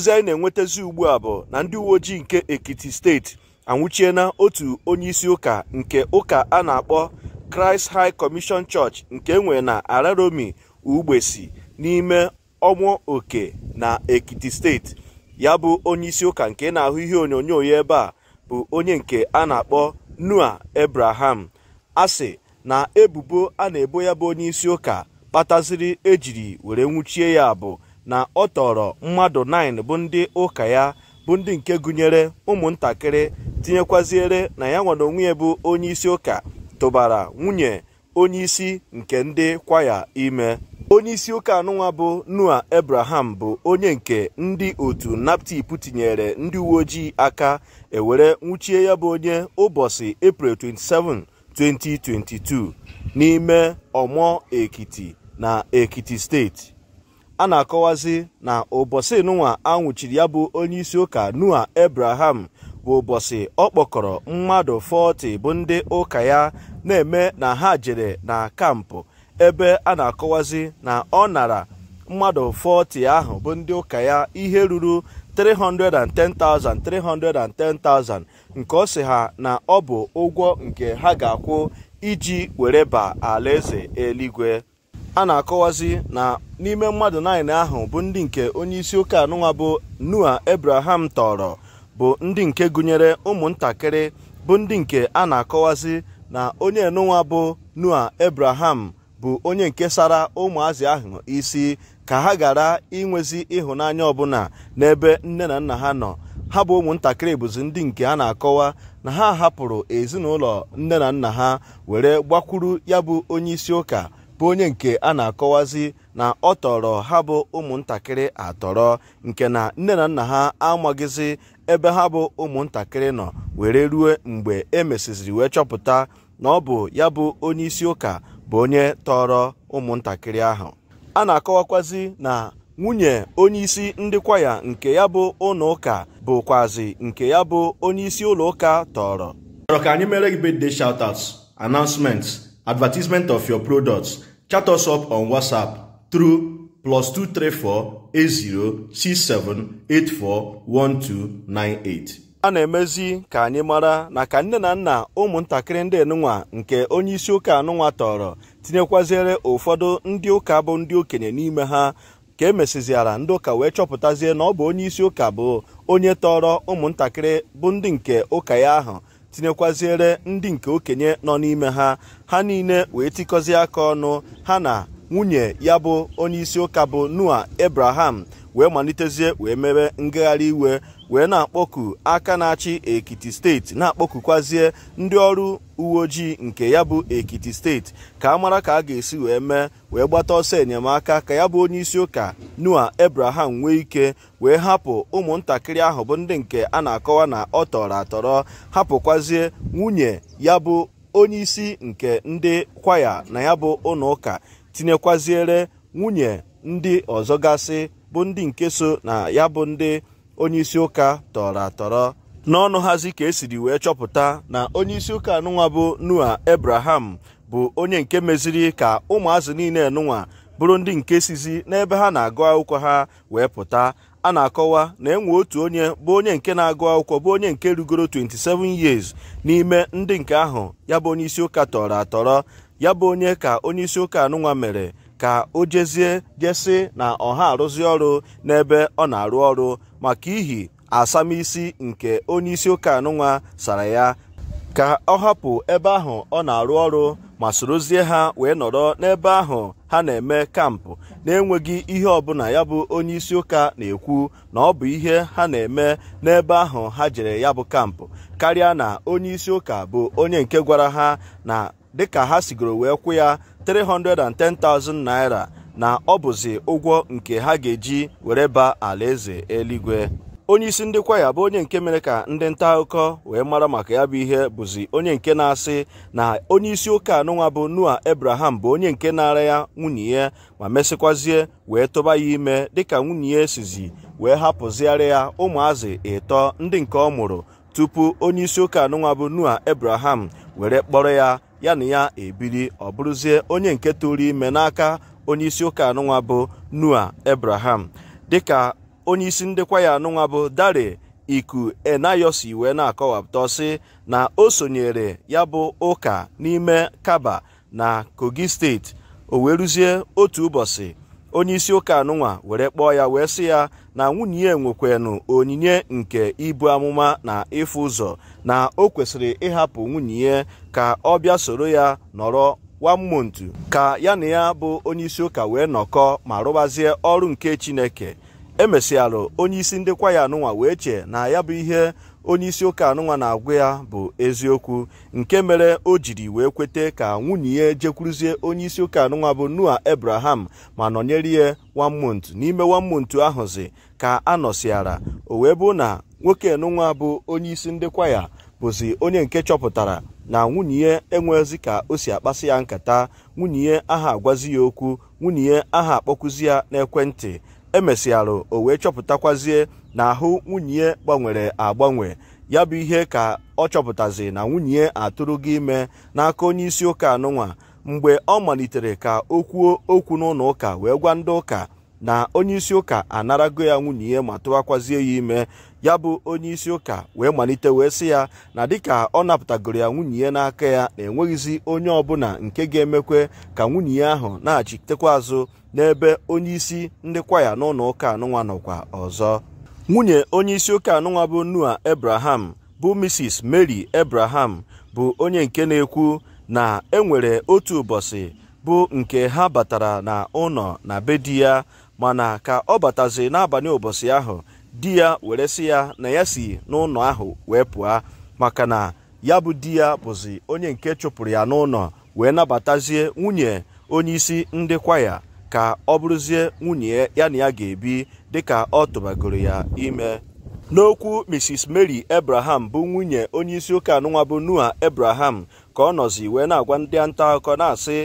ozi anyị na-enwetazi ugbu a bụ na ndị uwe ojii nke Ekiti steeti anwụchiena otu onye isi ụka nke ụka a na-akpọ kraịst High Commission Church nke enwe na Araromi Ugbesi n'ime ọmụ oke na Ekiti steeti ya bụ onyeisi ụka nke na-ahụ ihe onyonyo ya ebe a bụ onye nke a na-akpọ nua ebraham asị na ebubo a na-ebo ya bụ onye ụka kpataziri ejiri were nwụchie ya bụ na ọ tọrọ mmadụ 9 bụ ndị ụka ya bụ ndị nke gụnyere ụmụntakịrị tinyekwaziere na ya nwere onwe ya bụ onye isi ụka tụbara nwunye onye isi nke ndị kwaya ime onye isi ụka anụnwa bụ noa ebraham bụ onye nke ndị otu naptip tinyere ndị uwe ojii aka ewere nwuchie ya bụ onye ụbọchị april 27 2022 n'ime ọmọ ekiti na ekiti steeti a na-akọwazi na ụbọchị a anwụchiri ya bụ onyeisi ụka nua Abraham bụ ụbọchị ọ kpọkọrọ mmadụ 40 bụ ndị ụka ya na-eme na ha jere na kampụ ebe a na-akọwazi na ọ nara mmadụ 40 ahụ bụ ndị ụka ya ihe ruru 310,000 310,000 nke ọ sị ha na ọ bụ ụgwọ nke ha ga-akwụ iji were ba alaeze eluigwe a na-akọwazi na n'ime mmadụ naanị ahụ bụ ndị nke onyeisi ụka anụnwa bụ Noah Abraham tọrọ bụ ndị nke gụnyere ụmụntakịrị bụ ndị nke a na-akọwazi na onye enụnwa bụ nua ebraham bụ onye nke sara ụmụazị ahụ isi ka ha gara inwezi ịhụnanya ọbụla n'ebe nne na nna ha nọ ha bụ ụmụntakịrị bụzi ndị nke a na-akọwa na ha hapụrụ ezinụlọ nne na nna ha were gbakwuru ya bụ onye isi ụka bụ onye nke a na-akọwazi na ọ tọrọ ha bụ ụmụntakịrị atọrọ nke na nne na nna ha amaghịzi ebe ha bụ ụmụntakịrị nọ were rue mgbe e mesịziri wee chọpụta na ọ bụ ya bụ onye isi ụka bụ onye tọrọ ụmụntakịrị ahụ a na-akọwakwazi na nwunye onyeisi ndị kwaya nke ya bụ ụlọ ụka bụkwazi nke ya bụ onye isi ụlọ ụka tọrọ. Ka anyị mere gị shout out announcement advertisement of your products chat us up on WhatsApp through 234 80 a na-emezi ka anyị mara na ka nne na nna ụmụntakịrị ndị nụnwa nke onye isi ụka anụnwa tọrọ tinyekwaziere ụfọdụ ndị ụka bụ ndị okenye n'ime ha ka e mesiziara ndị ụka wee chọpụtazie na ọ bụ onye ụka bụ onye tọrọ ụmụntakịrị bụ ndị nke ụka ya ahụ tinyekwaziere ndị nke okenye nọ n'ime ha ha niile wee tikọzie aka ọnụ ha na nwunye ya bụ onyeisi ụka bụ noa ebraham wee malitezie wee mere ngagharị iwe wee na-akpọku aka na-achị ekiti steeti na-akpọkukwazie ndị ọrụ uwe ojii nke ya bụ ekiti steeti ka a mara ka a ga-esi wee mee wee gbata ọsọ enyemaka ka ya bụ onye isi ụka nua ebraham nwee ike wee hapụ ụmụntakịrị ahụ bụ ndị nke a na-akọwa na ọ tọrọ atọrọ hapụkwazie nwunye ya bụ onye isi nke ndị kwaya na ya bụ ụlọụka ụka tinyekwaziere nwunye ndị ọzọ gasị bụ ndị nke so na ya bụ ndị onyeisi ụka tọrọ atọrọ n'ọnụ hazi ka esiri wee chọpụta na onyeisi ụka anụnwa bụ nua ebraham bụ onye nke meziri ka ụmụazị niile nụnwa bụrụ ndị nke sizi n'ebe ha na-agụ akwụkwọ ha wee pụta a na-akọwa na enwe otu onye bụ onye nke na-agụ akwụkwọ bụ onye nke rugoro 27 years n'ime ndị nke ahụ ya bụ onyeisi ụka tọrọ atọrọ ya bụ onye ka onyeisi ụka anụnwa mere ka o jezie jesi na ọha arụzi ọrụ n'ebe ọ na-arụ ọrụ maka ihi asamisi nke onye isi ụka anụnwa sara ya ka ọ hapụ ebe ahụ ọ na-arụ ọrụ ma sorozie ha wee nọrọ n'ebe ahụ ha na-eme kampụ na-enweghị ihe ọbụla ya bụ onye isi ụka na-ekwu na ọ bụ ihe ha na-eme n'ebe ahụ ha jere ya bụ kampụ karịa na onye isi ụka bụ onye nke gwara ha na dịka ha sigoro wee kwụ ya 310,000 naira na ọ bụzi ụgwọ nke ha ga-eji were baa alaeze eluigwe onye isi ndị kwaya bụ onye nke mere ka ndị nta akụkọ wee mara maka ya bụ ihe bụzi onye nke na-asị na onye isi ụka anụnwa bụ noa ebraham bụ onye nke na-ara ya nwunye ya ma mesịkwazie wee tụba ya ime dịka nwunye ya esizi wee hapụzigharị ya ụmụazị ịtọ ndị nke ọ mụrụ tupu onye isi ụka anụnwa bụ noa ebraham were kpọrọ ya ya na ya ebiri ọ bụrụzie onye nke tụrụ ime n'aka onye isi ụka anụnwa bụ nua Abraham dịka onye isi ndekwa ya anụnwa bụ Dare Iku Enayosi wee na-akọwapụta ọsị na o sonyere ya bụ ụka n'ime Kaba na Kogi steeti o wee rụzie otu ụbọchị onye isi ụka anụnwa were kpọọ ya wee sị ya na nwunye ya nwekwanụ onyinye nke ibu amụma na ịfụ ụzọ na o kwesịrị ịhapụ nwunye ya ka ọ bịa soro ya nọrọ wamontu ka ya na ya bụ onyeisi ụka wee nọkọ ma rụbazie ọrụ nke chineke emesịalụ onyeisi ndị kwaya anụnwa wee chee na ya bụ ihe onyeisi ụka anụnwa na-agwa ya bụ eziokwu nke mere o jiri wee kwete ka nwunye ya onye onyeisi ụka anụnwa bụ noa abraham ma nọnyere ya wamont n'ime wamont ahụzi ka a nọsiara o wee bụ na nwoke nụnwa bụ onye isi ndị kwaya bụzi onye nke chọpụtara na nwunye ya enwezi ka o si akpasị ya nkata nwunye aha agwazi ya okwu nwunye aha akpọkụzi ya n'ekwentị emesịarụ o wee chọpụtakwazie na ahụ nwunye gbanwere agbanwe ya bụ ihe ka ọ chọpụtazi na nwunye atụrụ gị ime n'aka onye isi ụka anụnwa mgbe ọ malitere ka o kwuo okwu n'ụlọ ụka wee gwa ndị ụka na onye isi ụka anarago ya nwunye ya ma tụwakwazie ya ime ya bụ onye isi ụka wee malite wee sị ya na dịka ọ napụtagoro ya nwunye ya n'aka ya na enweghịzi onye ọbụla nke ga-emekwe ka nwunye ya ahụ na-achitekwa azụ n'ebe onye isi ndị kwaya n'ụlọ ụka anụnwa nọkwa ọzọ nwunye onye isi ụka anụnwa bụ nua ebraham bụ Mrs Mary ebraham bụ onye nke na-ekwu na enwere otu ụbọchị bụ nke ha batara na ụlọ na be di ya mana ka ọ batazi n'abalị ụbọchị ahụ di ya were sị ya na ya si n'ụlọ ahụ wee pụọ maka na ya bụ di ya bụzi onye nke chụpụrụ ya n'ụlọ wee nabatazie nwunye onye isi ndị kwaya ka ọ bụrụzie nwunye ya na ya ga-ebi dịka ọ tụbagoro ya ime n'okwu mrs mary ebraham bụ nwunye onye isi ụka anụnwa bụ noa abraham ka ọ nọzi wee na-agwa ndị nta akụkọ na-asị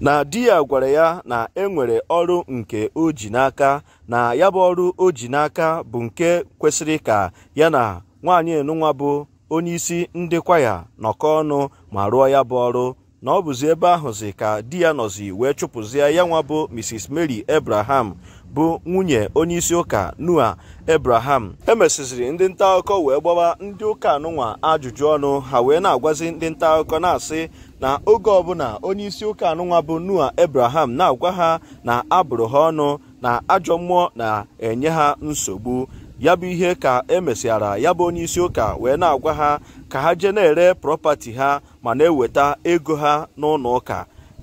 na di ya gwara ya na e nwere ọrụ nke o ji n'aka na ya bụ ọrụ o ji n'aka bụ nke kwesịrị ka ya na nwaanyị nụnwa bụ isi ndị kwaya nọkọ ọnụ ma rụọ ya bụ ọrụ na ọ bụzi ebe ahụzi ka di ya nọzi wee chụpụzie ya nwa bụ Mrs Mary ebraham bụ nwunye onye isi ụka Noah e emesịziri ndị nta akụkọ wee gbawa ndị ụka anụnwa ajụjụ ọnụ ha wee na-agwazi ndị nta akụkọ na-asị na oge ọbụla isi ụka anụnwa bụ noa abraham na-agwa ha na abụrụ ha ọnụ na ajọ mmụọ na-enye ha nsogbu ya bụ ihe ka emesịara ya bụ onye isi ụka wee na-agwa ha ka ha jee na-ere prọpati ha ma na-eweta ego ha n'ụlọ ụka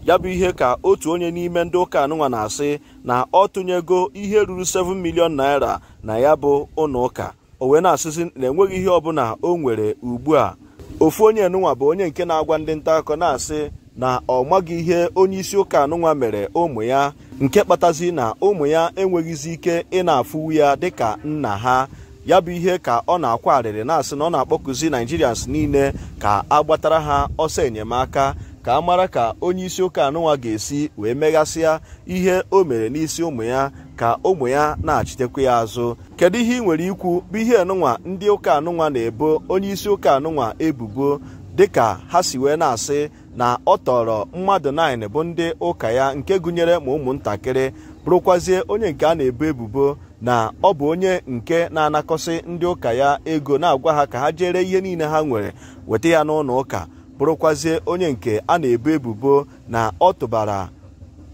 ya bụ ihe ka otu onye n'ime ndị ụka anụnwa na-asị na ọ tụnyego ihe ruru 7 milion naira na ya bụ ụlọ ụka o wee na-asịzi na enweghị ihe ọbụla o nwere ugbu a ofu onye nụnwa bụ onye nke na-agwa ndị nta akọ na-asị na ọ maghị ihe onye isi ụka anụnwa mere ụmụ ya nke kpatazi na ụmụ ya enweghịzi ike ị afụwu ya dịka nna ha ya bụ ihe ka ọ na-akwa arịrị na-asị na ọ na akpọkụzi naijirians niile ka agbatara ha ọsọ enyemaka ka a mara ka onye isi ụka anụnwa ga-esi wee meghasịa ihe o mere n'isi ụmụ ya ka ụmụ ya na-achịtekwa ya azụ kedu ihe ị nwere ikwu bụ ihe anụnwa ndị ụka anụnwa na-ebo onye isi ụka anụnwa ebubo dịka ha si wee na-asị na ọ tọrọ mmadụ 9 bụ ndị ụka ya nke gụnyere ma ụmụntakịrị bụrụkwazie onye nke a na-ebo ebubo na ọ bụ onye nke na-anakọsị ndị ụka ya ego na-agwa ha ka ha jere ihe niile ha nwere weta ya n'ụlọ ụka bụrụkwazie onye nke a na-ebo ebubo na ọ tụbara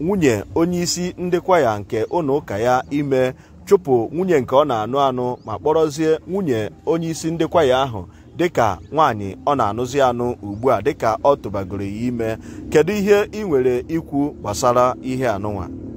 nwunye onyeisi ndị kwaya nke ụlọ ụka ya ime chụpụ nwunye nke ọ na-anụ anụ ma kpọrọzie nwunye onyeisi ndị kwaya ahụ dịka nwaanyị ọ na-anụzi anụ ugbu a dịka ọ tụbagoro ya ime kedu ihe ị nwere ikwu gbasara ihe anụnwa